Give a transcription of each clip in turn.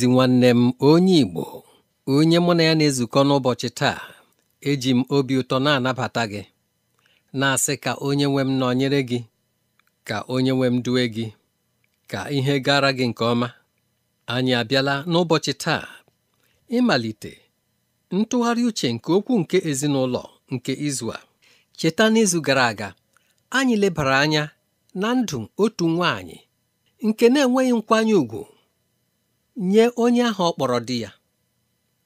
ezi nwanne m onye Igbo onye mụ na ya na-ezukọ n'ụbọchị taa eji m obi ụtọ na-anabata gị na-asị ka onye nwe m nọnyere gị ka onye nwe m due gị ka ihe gara gị nke ọma anyị abịala n'ụbọchị taa ịmalite ntụgharị uche nke okwu nke ezinụlọ nke izu a cheta n'izu gara aga anyị lebara anya na ndụ otu nwanyị nke na-enweghị nkwanye ùgwù nye onye ahụ ọ kpọrọ di ya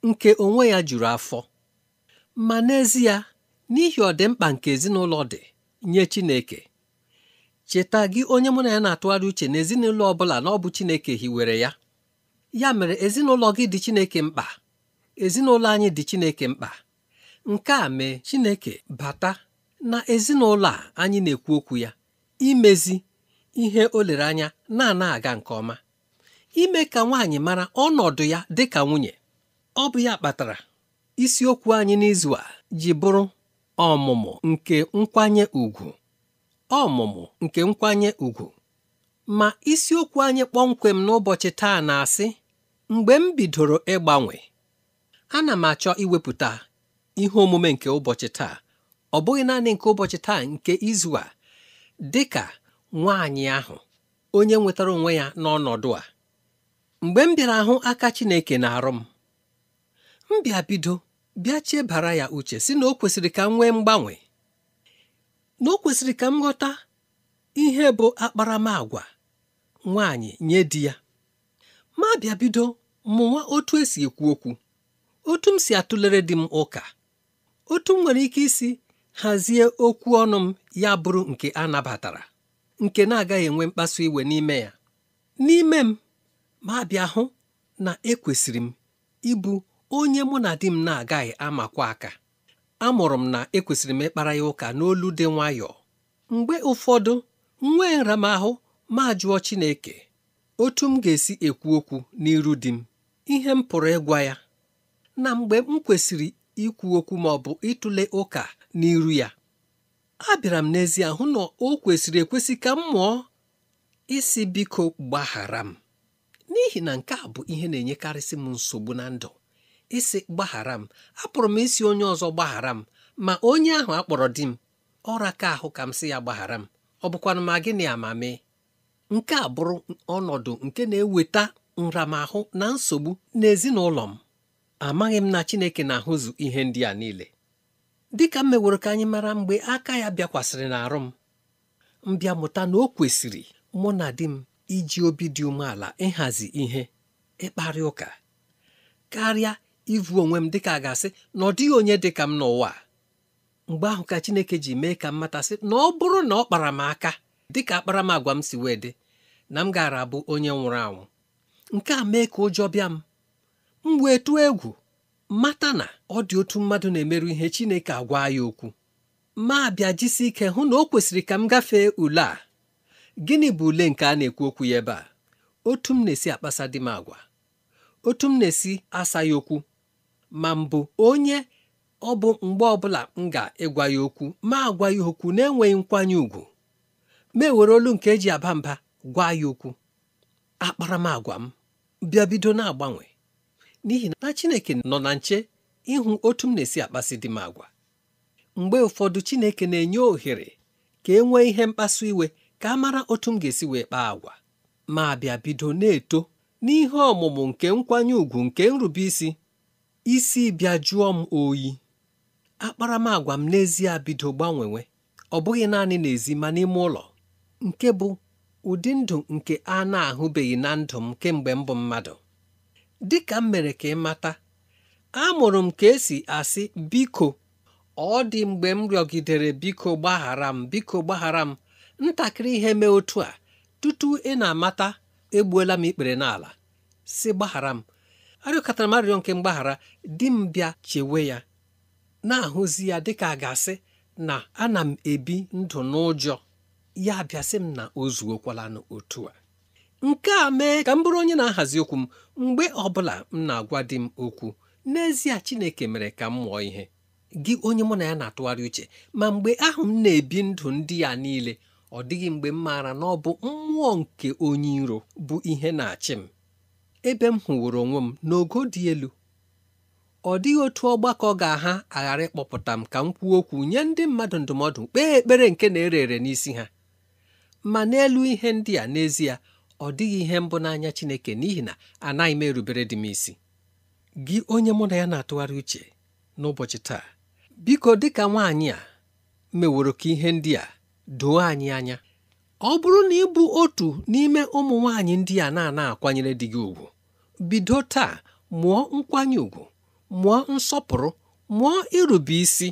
nke onwe ya juru afọ ma n'ezie n'ihi ọdịmkpa nke ezinụlọ dị nye Chineke cheta gị onye mụ na ya na-atụgharị uche na ezinụlọ ọ bụla na ọ bụ Chineke hiwere ya ya mere ezinụlọ gị dị Chineke mkpa ezinụlọ anyị dị Chineke mkpa nke a mee Chineke bata na ezinụlọ a anyị na-ekwu okwu ya imezi ihe o lere anya na-ana aga nke ọma ime ka nwaanyị mara ọnọdụ ya dị ka nwunye ọ bụ ya kpatara isiokwu anyị n'izu a ji bụrụ ọmụmụ nke nkwanye ùgwù ọmụmụ nke nkwanye ùgwù ma isiokwu anyị kpọmkwem n'ụbọchị taa na-asị mgbe m bidoro ịgbanwe ana m achọ iwepụta ihe omume nke ụbọchị taa ọ bụghị naanị nke ụbọchị taa nke izu a dị ka nwaanyị ahụ onye nwetara onwe ya n'ọnọdụ a mgbe m bịara hụ aka Chineke na-arụ m m bịa bido bịa chebara ya uche si na o kwesịrị ka m nwee mgbanwe na o kwesịrị ka m ghọta ihe bụ akparamàgwa nwaanyị nye di ya ma bịa bido mụnwa otu esi ekwu okwu otu m si atụlere di m ụka otu m nwere ike isi hazie okwu ọnụ m ya bụrụ nke a nabatara nke na-agaghị enwe mkpasu iwe n'ime ya n'ime m ma bịa hụ na ekwesịrị m ịbụ onye mụ na di m na-agaghị amakwa aka amụrụ m na ekwesịrị m ịkpara ya ụka n'olu dị nwayọọ mgbe ụfọdụ nwee nramahụ ma jụọ Chineke otu m ga-esi ekwu okwu n'iru di m ihe m pụrụ ịgwa ya na mgbe m kwesịrị ikwu okwu ma ọ bụ ịtụle ụka n'iru ya abịara m n'ezie hụ na o kwesịrị ekwesị ka m mụọ isi biko gbaghara m n'ihi na nke a bụ ihe na-enyekarịsị m nsogbu na ndụ isi gbaghara m apụrụ m isi onye ọzọ gbaghara m ma onye ahụ akpọrọ di m ọra ka ahụ ka m sị ya gbaghara m ọ bụkwana ma gịnị amami nke a bụrụ ọnọdụ nke na-eweta nramahụ na nsogbu n'ezinụlọ m amaghị m na Chineke na-ahụzụ ihe ndị a niile dịka m meworo ka anyị mara mgbe aka ya bịakwasịrị n'arụ m mbịa mụta na o kwesịrị mụ na di m iji obi dị umeala ịhazi ihe ịkparị ụka karịa ịvụ onwe m dịka a ga-asị na ọ dịghị onye dị ka m n'ụwa mgbe ahụ ka Chineke ji mee ka m matasị na ọ bụrụ na ọ kpara m aka dịka akpara m si wee dị na m gaara abụ onye nwụrụ anwụ nke a mee ka ụjọ bịa m m wee tụọ egwu mata na ọ dị otu mmadụ na-emerụ ihe Chineke agwa ya okwu ma bịa jisi ike hụ na o kwesịrị ka m gafee ule a gịnị bụ ule nke a na-ekwu okwu ya ebe a otu m na-esi akpasa di m agwa otu m na-esi asa ya okwu ma mbụ onye ọ bụ mgbe ọbụla m ga-ịgwa ya okwu ma agwa ya okwu na-enweghị nkwanye ùgwù ma ewere olu nke eji aba mba gwa ya okwu akparamagwa m bịa bido na-agbanwe n'ihi na Chineke nọ na nche ịhụ otu m na-esi akpasị di m agwa mgbe ụfọdụ Chineke na-enye ohere ka e nwee ihe mkpasu iwe ka a mara otu m ga-esi wee kpaa agwa ma bịa bido na-eto n'ihe ọmụmụ nke nkwanye ùgwù nke nrube isi isi bịa jụọ m oyi akparamagwa m n'ezie bido gbanwewe ọ bụghị naanị n'ezi ma n'ime ụlọ nke bụ ụdị ndụ nke a na-ahụbeghị na ndụ m kemgbe m bụ mmadụ dị ka m mere ka ị mata amụrụ m ka esi asị biko ọ dị mgbe m rịọgidere biko gbaghara m biko gbaghara m ntakịrị ihe mee otu a tutu ị na-amata egbuola m ikpere n'ala si gbaghara m arịọkọtara m arịrịọ nke mgbaghara di m bịa chewe ya na-ahụzi ya dịka a ga-asị na ana m ebi ndụ n'ụjọ ya bịasị m na o zuokwalanụ otu a nke a mee ka m bụrụ onye na-ahazi okwu m mgbe ọbụla m na-agwa di m okwu n'ezie Chineke mere ka m mụọ ihe gị onye mụ na ya na-atụgharị uche ma mgbe ahụ m na-ebi ndụ ndị ya niile ọ dịghị mgbe m maara na ọ bụ mmụọ nke onye iro bụ ihe na-achị m ebe m hụworo onwe m n'ogo dị elu ọ dịghị otu ọgbakọ ga-aha aghara ịkpọpụta m ka m kwuo okwu nye ndị mmadụ ndụmọdụ kpee ekpere nke na-ere ere n'isi ha ma n'elu ihe ndị a n'ezie ọ dịghị ihe mbụ n'anya Chineke n'ihi na anaghị m erubere dị m isi gị onye mụ na ya na-atụgharị uche n'ụbọchị taa biko dịka nwaanyị a meworo ka ihe ndị a doo anyị anya ọ bụrụ na ị bụ otu n'ime ụmụ nwanyị ndị a na-ana akwanyere di gị ugwu bido taa mụọ nkwanye ugwu mụọ nsọpụrụ mụọ irube isi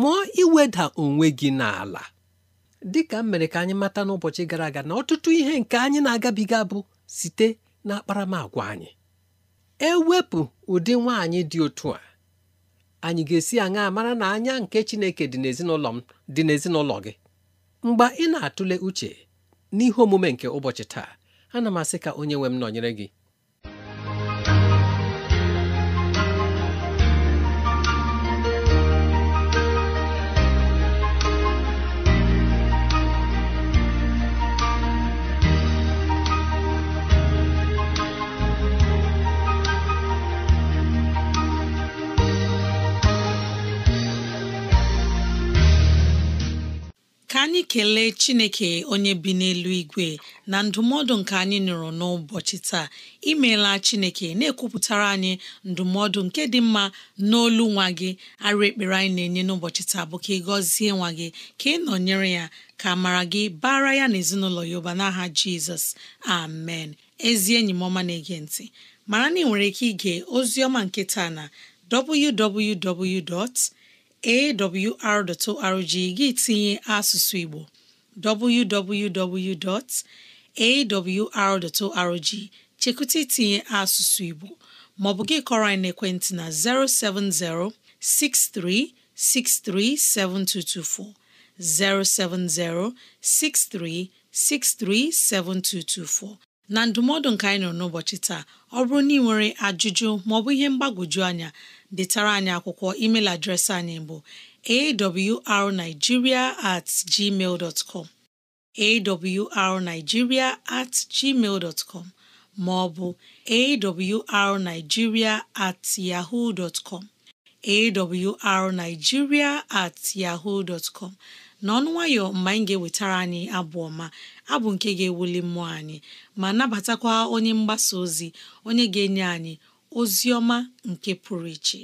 mụọ iweda onwe gị n'ala dịka m mere ka anyị mata n'ụbọchị gara aga na ọtụtụ ihe nke anyị na-agabiga bụ site na akparamagwa anyị ewepụ ụdị nwaanyị dị otu a anyị ga-esi aṅa mara na anya nke Chineke dị n'ezinụlọ m dị n'ezinụlọ gị mgbe ị na-atụle uche n'ihe omume nke ụbọchị taa ana m asị ka onye nwe m nọnyere gị anyị kelee chineke onye bi n'elu igwe na ndụmọdụ nke anyị nụrụ n'ụbọchị taa imeela chineke na-ekwupụtara anyị ndụmọdụ nke dị mma n'olu nwa gị arụ ekpere anyị na-enye n'ụbọchị taa bụ ka ị gọzie nwa gị ka ị nọnyere ya ka mara gị bara ya na ezinụlọ ya ụba n'aha jizọs amen ezi enyi m ọma na-ege ntị mara na ị nwere ike ige ozi ọma nke taa na www. awr.org gị tinye asụsụ Igbo www.awr.org chekwụta itinye asụsụ Igbo ma ọ bụ gị kọrọ anyị n'ekwentị na 070 6363 7224 070 6363 7224 na ndụmọdụ nka anyị nọ n'ụbọchị taa ọ bụrụ na ị nwere ajụjụ maọbụ ihe mgbagwoju anya detara anyị akwụkwọ email adreesị anyị bụ arigiria at gmail dot com at gmail com ma ọ bụ at yahoo dot com at yahoo dot com n'ọnụ nwayọ mgbe anyị ga-ewetara anyị abụ ọma abụ nke ga-ewuli mmụọ anyị ma nabatakwa onye mgbasa ozi onye ga-enye anyị Ozioma nke pụrụ iche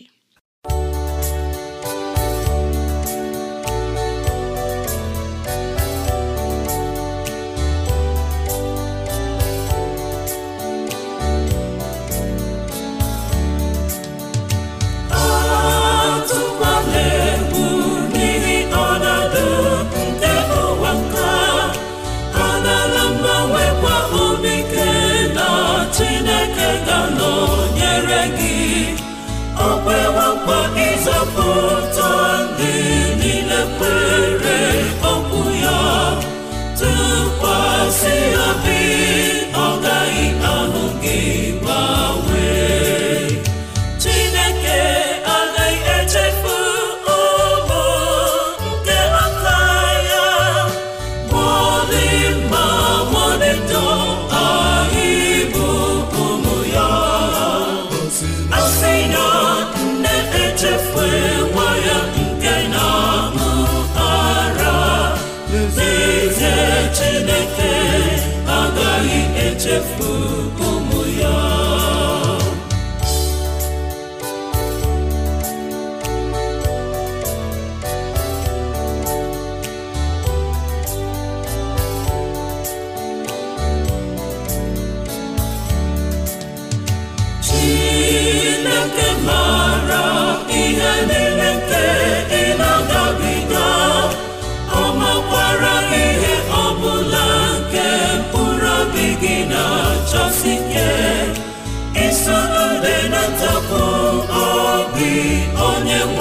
onye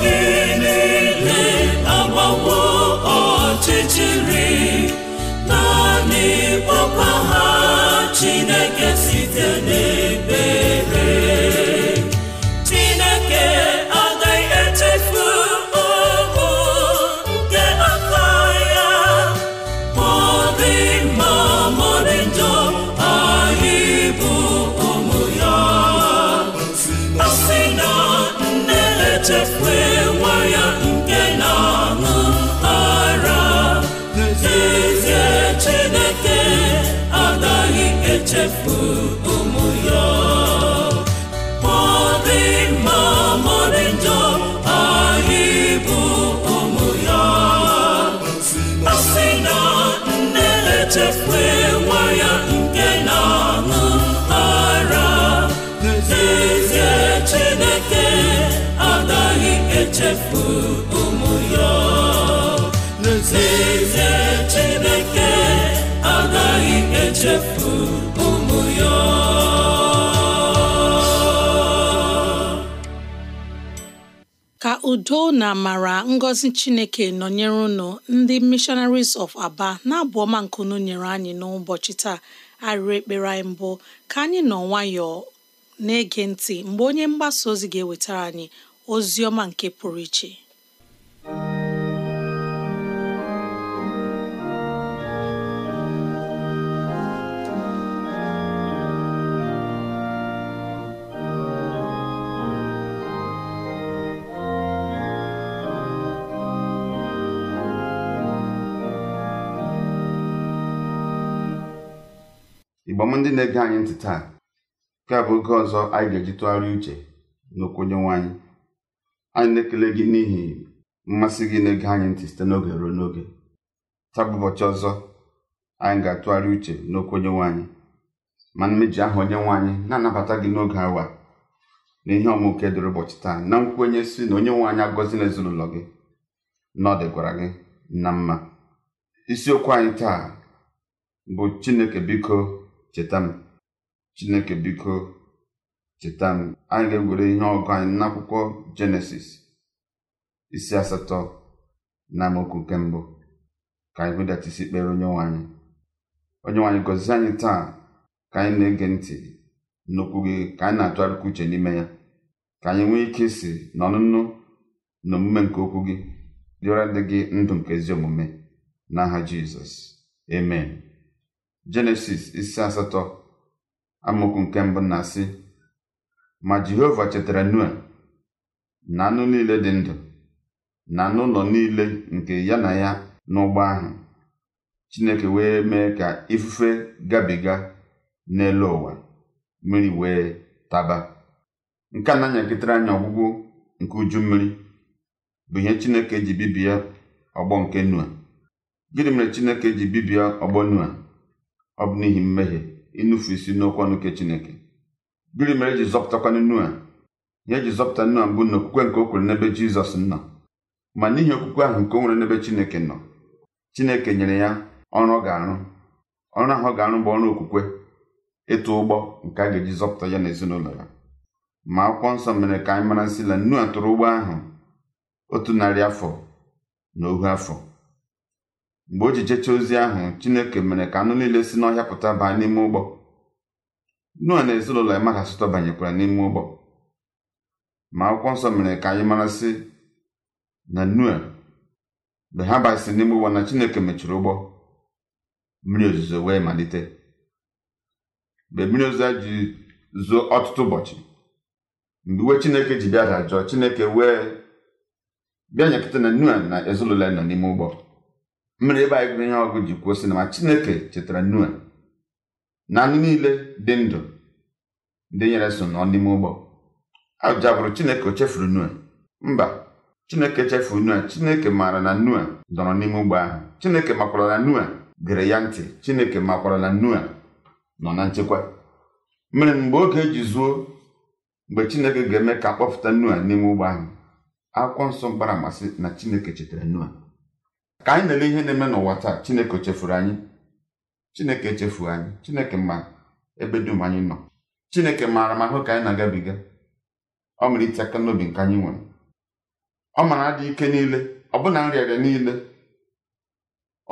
Deus. echefue nwa ya nke na-aṅụ ara n'ezie Chineke agaghị echefu ụmụ ya n'ezie Chineke agaghị echefu udo na amara ngozi chineke nọnyere unu ndị missionaries of aba na-abụ ọma nkunu nyere anyị n'ụbọchị taa arịrị ekpere anyị mbụ ka anyị nọ nwayọọ na-ege ntị mgbe onye mgbasa ozi ga-ewetara anyị ozi ọma nke pụrụ iche mgbe ndị na-ege anyị ntị taa nke a bụ oge ọzọ anyị ga-eji tụgharịa uche n'okwu Onyenwe anyị anyị na-ekele gị n'ihi mmasị gị na-ege anyị ntị site n'oge ruo n'oge taa bụ ụbọchị ọzọ anyị ga-atụgharị uche n'okwu Onyenwe anyị ma mmeji aha Onyenwe anyị na-anabata gị n'oge awa na ihe ọmụke dịrị ụbọchị taa na nkwenye si na Onyenwe anyị na ezinụlọ gị na ọ gị na mma isiokwu anyị taa bụ Chineke biko cheta m chineke biko cheta m anyị ga egwere ihe ọgụ anyị n'akwụkwọ jenesis isi asatọ na amaokwu nke mbụ ka anyị wedata isi kpere onye nwanyị onye nwanyị gọzie anyị taa ka anyị na-ege ntị n'okwu gị ka anyị na-atụgharịkwa uche n'ime ya ka anyị nwee ike isi na ọnụnụ na omume nke okwu gị dịra dị gị ndụ nke ezi omume n'aha jizọs emen jenesis isi asatọ amaokwu nke mbụ na-asị ma jehova chetara nua na anụ niile dị ndụ na anụ ụlọ niile nke ya na ya n'ụgbọ ahụ chineke wee mee ka ifufe gabiga n'elu ụwa mmiri wee taba nke a na-anyakịtara anyị ọgwụgwụ nke uju mmiri bụ ihe chineke ji bibie ọgbọ nke noa gịnị mere chineke ji bibie ọgbọ noa ọ bụ n'ihi mmehie ịnụfu isi n'okwu ọnụ nke Chineke gịnị mere eji zọpụtakwa Noa Ya eji zọpụta nua mbụ na okwukwe nke o kwere n'ebe Jizọs nọ ma n'ihi okwukwe ahụ nke o nwere n'ebe Chineke nọ Chineke nyere ya ọrụ ọ ga-arụ ọrụ ahụ ọ ga-arụ bụ ọrụ okwukwe ịtụ ụgbọ nke a ga-eji zọpụta ya na ezinụlọ ya ma akwụkwọ nsọ mere ka anyị mara sị na a tụrụ ụgbọ ahụ otu narị afọ na ohu afọ mgbe o ji jecha ozi ahụ chineke mere ka anụ niile si n'ọhịa pụta baa n'ime ụgbọ noa na ezinụlọ ya mmadụ asụtọ banyekwara n'ime ụgbọ ma akwụkwọ nsọ mere ka anyị mara sị na noa mgbe ha basịrị n'ime ụgbọ na chineke mechiri ụgbọ mmiri ozuzo wee malite mgbe mmiri ozuzo ji zuo ọtụtụ ụbọchị mgbe iwe chineke ji bịa dajụọ chineke wee bịa nyekọta na noa na ezinụlọ ya nọ n'ime ụgbọ mmiri ebe anyị gụrụ ihe ọgụ ji kwuo sị ma chineke chetara nua na anụ niile dị ndụ ndị nyere so nọ n'ime ụgbọ ajụja bụrụ chineke o chefuru mba chineke chefuru nua chineke maara na nua dọrọ n'ime ụgbọ ahụ chineke makwara na gere ya ntị chineke makwara na nọ na nchekwa mere mgbe oge eji zuo mgbe chineke ga-eme ka akpọpụta nua n'ime ụgbọ ahụ akwụkwọ nsọ gbara amasị na chineke chetara nua ka anyị na-ele ihe na-eme n'ụwa taa chineke chefuru anyị chineke echefuo anyị chineke ma ebe dum anyị nọ chineke maara ma ahụ ka anyị na-agabiga ọ mere ite aka n'obi nke anyị nwere ọ mara adị ike niile ọbụna nrịarịa niile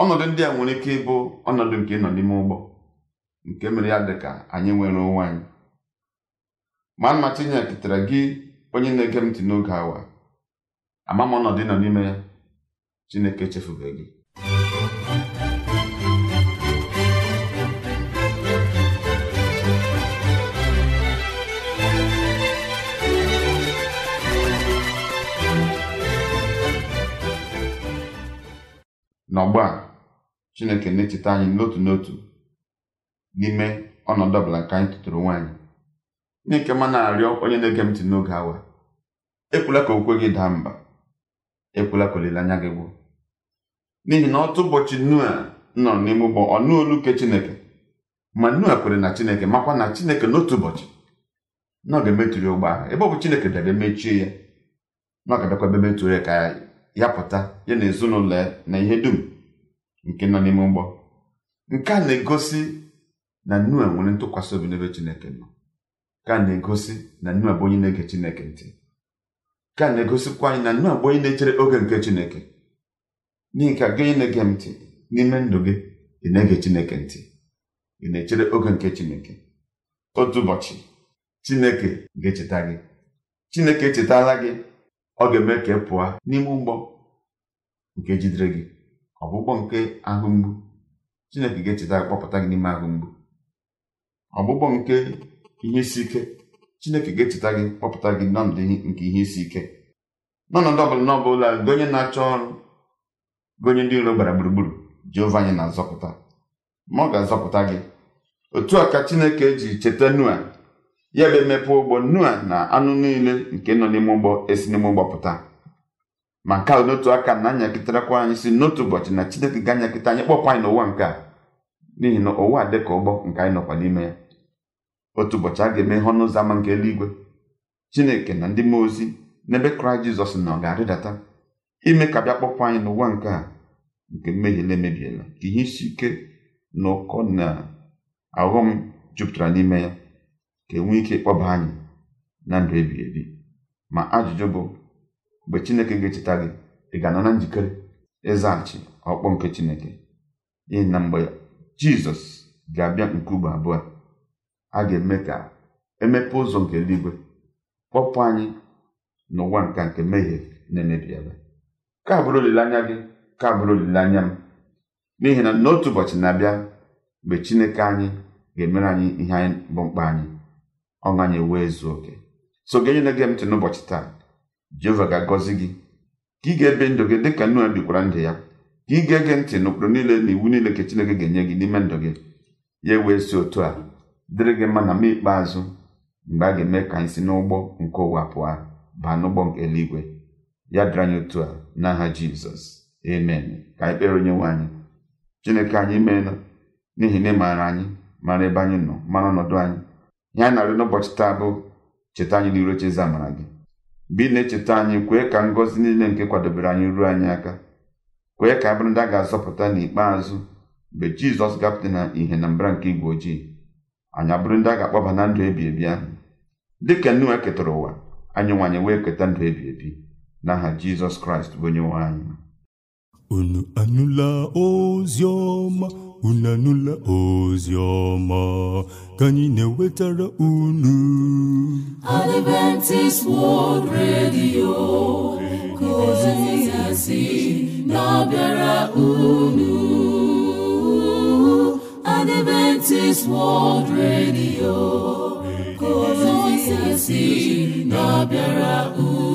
ọnọdụ ndị a nwere ike ịbụ ọnọdụ nke ịnọ n'ime ụgbọ nke mere ya dị ka anyị nwere onwe anyị ma mma chineke ketara gị onye na-ege m ntị n'oge awa ama m ọnọdụ ịnọ n'ime ya Chineke echefubeghị gị? a Chineke na-echeta anyị n'otu n'otu n'ime ọnọdụ ọbụla nke anyị tụtụrụ nwaanyị Chineke ma na-arịọ onye na-ege m ntị n'oge awa kwula ka okwe gị daa mba ekwula ka olileanya gị n'ihi na otu ụbọchị nua nọ n'ime ụgbọ ọ nụ olu nke chineke ma nua kwere na chineke makwa na chineke n'otu ụbọchị na ọ ga-emetụrụ ụgbọ ahụ ebe ọ bụ chineke debe mechie ya na ọ ga-abịakwa ebe metụrụ ya ka ya pụta ya na ezinụlọ ya na ihe dum nke nọ n'ime ụgbọ nke a na-egosi na nua nwere ntụkwasị obi n'ebe chineke nọ nke a na-egosi na nua bụ onye na-ege chineke ntị nke a na-egosikwa anyị na nua bụ onye na-echere oge nke chineke n'ihi ka gị na-ege m ntị n'ime ndụ gị ị na-ege chineke ntị ị na-echere oge nke chineke otu ụbọchị chineke ga-echeta gị chineke echetala gị ọ ga-eme ka ị pụọ n'ime ụgbọ nke jidere gị ọgbụgbọ nke ahụ mgbu chineke ga-echeta gị kpọpụta gị n'ime ahụ mgbu ọgbụgbọ nke ihe isi ike chineke ga-echeta gị kpọpụta gị n'ọnọdụ nke ihe isi ike n'ọnọdụ ọ bụla n'ọbụla onye na-achọ ọrụ bụ onye ndị iro gbara gburugburu Jehova anyị na-azọpụta ma ọ ga-azọpụta gị otu a ka Chineke ji cheta Noa ya bụ emepe ụgbọ Noa na anụ niile nke nọ n'ime ụgbọ esi n'ime ụgbọ pụta ma nke a n'otu aka na-anyakịtarakwa anyị si n'otu ụbọchị na Chineke ga-anyakịta anyị kpọpụ anyị n'ụwa nke a n'ihi na ụwa dị ka ụgbọ nke anyị nọkwa n'ime ya otu ụbọchị a ga-eme ihe ọnụ ụzọ ama nke eluigwe Chineke na ndị mmụọ ozi n'ebe Kraịst Jizọs nọ ga-arịdata ime ka bịa kpọpụ anyị n'ụwa nke a nke mmehie na-emebiela ka ihe isi ike na ụkọ na aghọm jupụtara n'ime ya ka enwee ike ịkpọba anyị na ndụ ebighị ebi ma ajụjụ bụ mgbe chineke ga-echeta gị ị ga-anọ na njikere ịzaghachi ọkpọ nke chineke n'ihi na mgbe jizọs ga-abịa nke ugbo abụọ a ga-eme ka emepe ụzọ nke eluigwe kpọpụ anyị n'ụwa nka nke mmehie na-emebiela ka bụrụ olileanya gị ka bụrụ olileanya m n'ihi na n'otu ụbọchị na-abịa mgbe chineke anyị ga-emere anyị ihe anyị bụ mkpa anyị ọṅụ anyị wee zuo oke so gị onye na-ege ntị n'ụbọchị taa jehova ga-agọzi gị ka ị ga-ebe ndụ gị dịka nnu bikwara ndụ ya ka ị gee gị ntị n'ụkpụrụ niile na iwu niile ka chineke ga-enye gị n'ime ndụ gị ya ewee si otu a dịrị gị mma na mma ikpeazụ mgbe a ga-eme ka anyị si n'ụgbọ nke ụwa pụọ baa n'ụgbọ nke eluigwe ya dịrị anyị otu a n'aha jizọs amen ka anyị kpere onye nwe anyị chineke anyị meela n'ihi na ị maara anyị mara ebe anyị nọ mara ọnọdụ anyị ihe anyị na ụbọchị n'ụbọchị taa bụ cheta anyị n'iru oche eze amara gị mgbe ị na-echeta anyị kwee ka ngọzi niile nke kwadobere anyị ruo anyị aka kwee ka abụrụ ndị a ga-azọpụta n'ikpeazụ mgbe jizọs gapụta na ihe na mbara nke igwe ojii anyị abụrụ ndị a ga-akpọba na ndụ ebi ebi ahụ dịka nnu ketara ụwa anyị nwanyị wee keta ndụ ebi ebi n'aha jizọs kraịst bụ onye nwe anyị unu anụla ozi ọma unu anụla ozi ọma ka anyị na-ewetara unu Adventist World Radio ka ozi si na-abịara unu Adventist World Radio ka ozi si na-abịara unu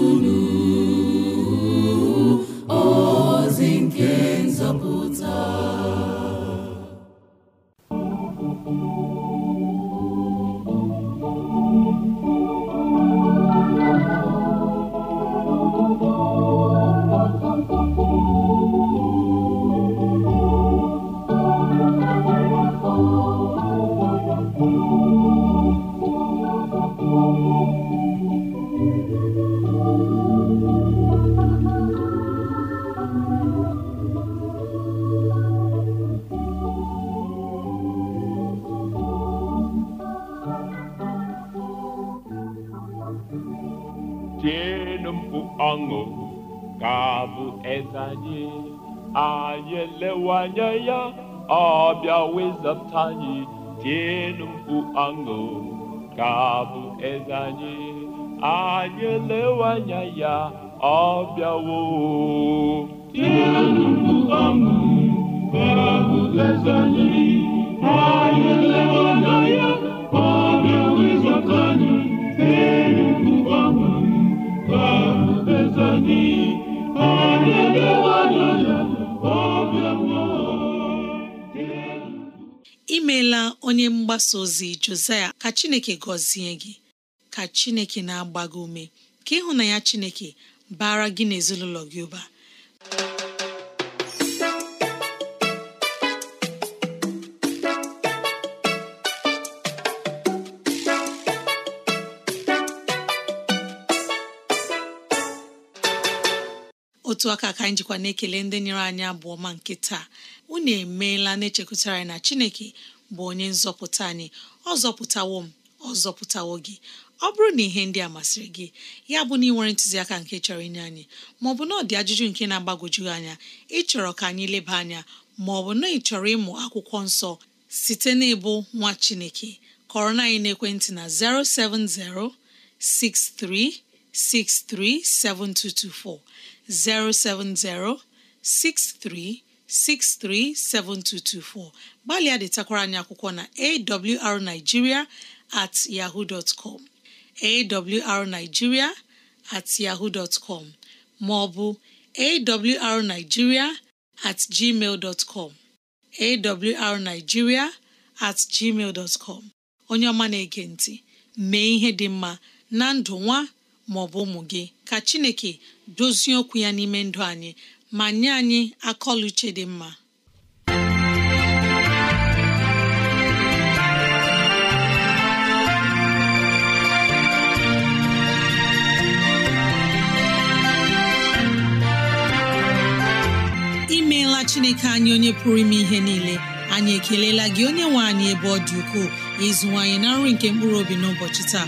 ọṅụ ka bụ eze anyị anyị anya ya ọ bịa wezapụta anyị tienụ mkpu ọṅụ ka bụ eze anyị anyị anya ya ọ bịawo ọṅụ ka bụ eze anyị anyị anya onye mgbasa ozi Josaya ka Chineke gọzie gị ka Chineke na-agba gị ume ka ya Chineke bara gị n'ezinụlọ gị ụba otu aka ka anyị jikwa na-ekele ndị nyere anyị abụọ ma nke taa unu emeela na-echekwutara anyị na Chineke bụ onye nzọpụta anyị ọ zọpụtawo m ọ zọpụtawo gị ọ bụrụ na ihe ndị a masịrị gị ya bụ na ị nwere ntụziaka nke chọrọ inye anyị maọbụ na ọ dị ajụjụ nke na agbagojugị anya ịchọrọ ka anyị leba anya maọbụ na ị chọrọ ịmụ akwụkwọ nsọ site n'ịbụ nwa Chineke kọrọ na anyị n'ekwentị na 070 6363 070-63 637224 gbalịa detakwara anyị akwụkwọ na awrnigeria at yahoo dot com awrnigeria at yahoo dot com ma ọ bụ awrnigeria at gmail com awrnigeria at gmail dot com onye ọma na-ege ntị mee ihe dị mma na ndụ nwa ma ọ bụ ụmụ gị ka Chineke dozie okwu ya n'ime ndụ anyị ma nye anyị akọluche dị mma imeela chineke anyị onye pụrụ ime ihe niile anyị ekelela gị onye nwe anyị ebe ọ dị ukwuu ịzụwanyị na nri nke mkpụrụ obi n'ụbọchị taa